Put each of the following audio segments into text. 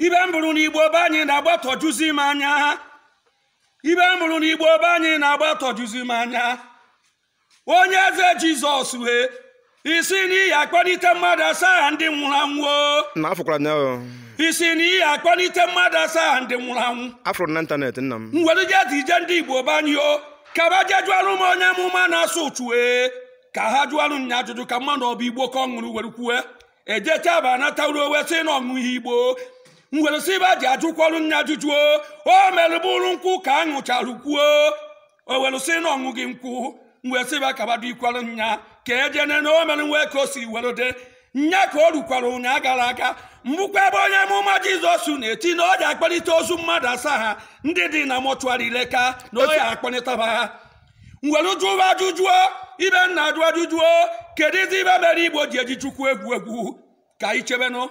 ibe m bụrụ na igbo be anyị na-agbatọjuzi m anya ibe m bụrụ na igbo be anyị na-agbatọjuzi m anya onye eze jizọs wee isi n'ihi akpọlite mmadụ asaa ndị nwụrụ anwụ isi n'ihi akpọlite mmadụ asaa ndị nwụrụ anwụ afụrụ na ịntanetị nna m nwere jezi ije ndị igbo be anyị o ka ba jee jụọrụ m onye amụma na-asụ uchuwe ka ha jụọrụ nya ajụjụ ka mmadụ ọ igbo ka ọ ṅụrụ were kwue ejecha ba anata uruowe si na ọṅụ ihe igbo ngwere si ibe ji ajụkwọrụ nne ajụjụ o merụbụrụ nkwụ ka a ṅụcharụ kwuo o were na ọṅụ gị nkwụ ngwere si ibe kabado ikwarụ nya ka ejene na o mere nwe ka o si were dị nya ka o rukwara ụnya gara aga mbụkwa ebe onye mụma jizọs na-eti na ọ dị akpalite ozu mmadụ asaa ha ndị dị na mọchụarị leka na ọ ya ha ngwere jụrụ ajụjụo ibe nna ajụ ajụjụo kedụ izi ibe mere igbo ji eji chukwu egwu egwu ka anyị chebenụ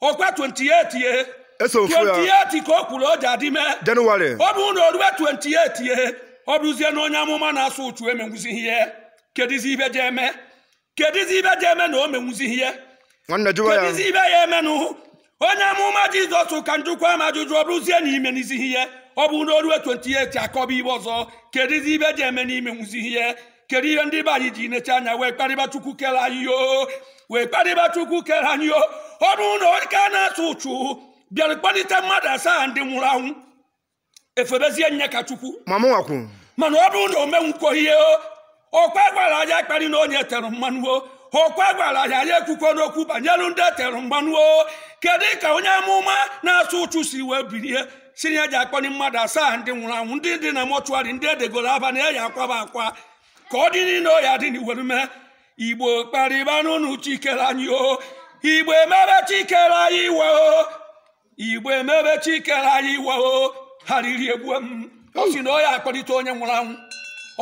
ọkwa 28 ye 28 ka o kwuru o ji adị mee jenụwarị ọ bụrụ na o 28 ye ọ bụrụzie na onye amụma na-asụ uchu emenwuzighị ihe kedizi ibe je eme kedizi ibe je eme na o menwuzighị ihe kedizi ibe ya eme nụ? onye amụma jizọs ka njụkwa ama ajụjụ ọ bụrụzie na imenizighị ihe ọ bụ na o 28 akọba ibe ọzọ kedizi ibe je eme na imenwuzighị ihe kedu ihe ndị be anyị ji necha anya wee kparịba chukwu kere anyị o wee kparịba kere anyị o ọ bụrụ na onye ka na-asụ ụchụ bịara kpalite mmadụ asaa ndị nwụrụ anwụ efebezie nye ka chukwu mana ọ bụrụ na omenwukwo ihe okwe gwara anyị kpari na onye tere mmanụ o okwe gwara anyị anyị ekwukwo n'okwu banyere ndị etere mmanụ o kedu ka onye amụma na atụ ụchụ si wee birie si ya ji akparị mmadụ asaa ndị nwụrụ anwụ ndị dị na mọchụarị ndị edegoro aba na-eyi akwaba akwa ka ọ dị niile ọya dị n'iwere mee igbo kparịba n'ụnụ chikere anyị o igbo emebe chikere anyị iwe o igbo emebe chikere anyị iwe o ha riri egbu m ọ na ọ ya onye nwụrụ anwụ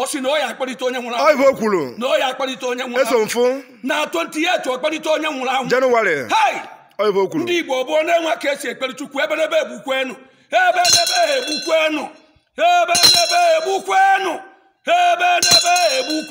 osi na ọ ya onye nwụrụ anwụ ọ kwuru na ọ ya onye nwụrụ anwụ eso mfụ na 28 ọkpọlite onye nwụrụ anwụ jenụwarị ndị igbo gboo na-enwe ka esi ekpere chukwu ebe n'ebe egbukwenu ebe n'ebe egbukwenu ebe n'ebe egbukwenu ebe n'ebe